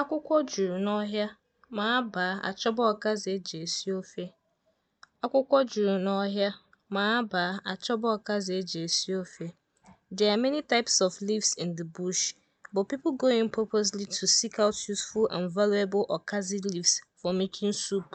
Akwụkwọ juru n'ọhịa, ma abaa achọba ọkazị e ji esi ofe. Akwụkwọ juru n'ọhịa, ma abaa achọba ọkazị e ji esi ofe. There are many types of leaves in the bush, but people go in purposely to seek out useful and valuable okazi leaves for making soup.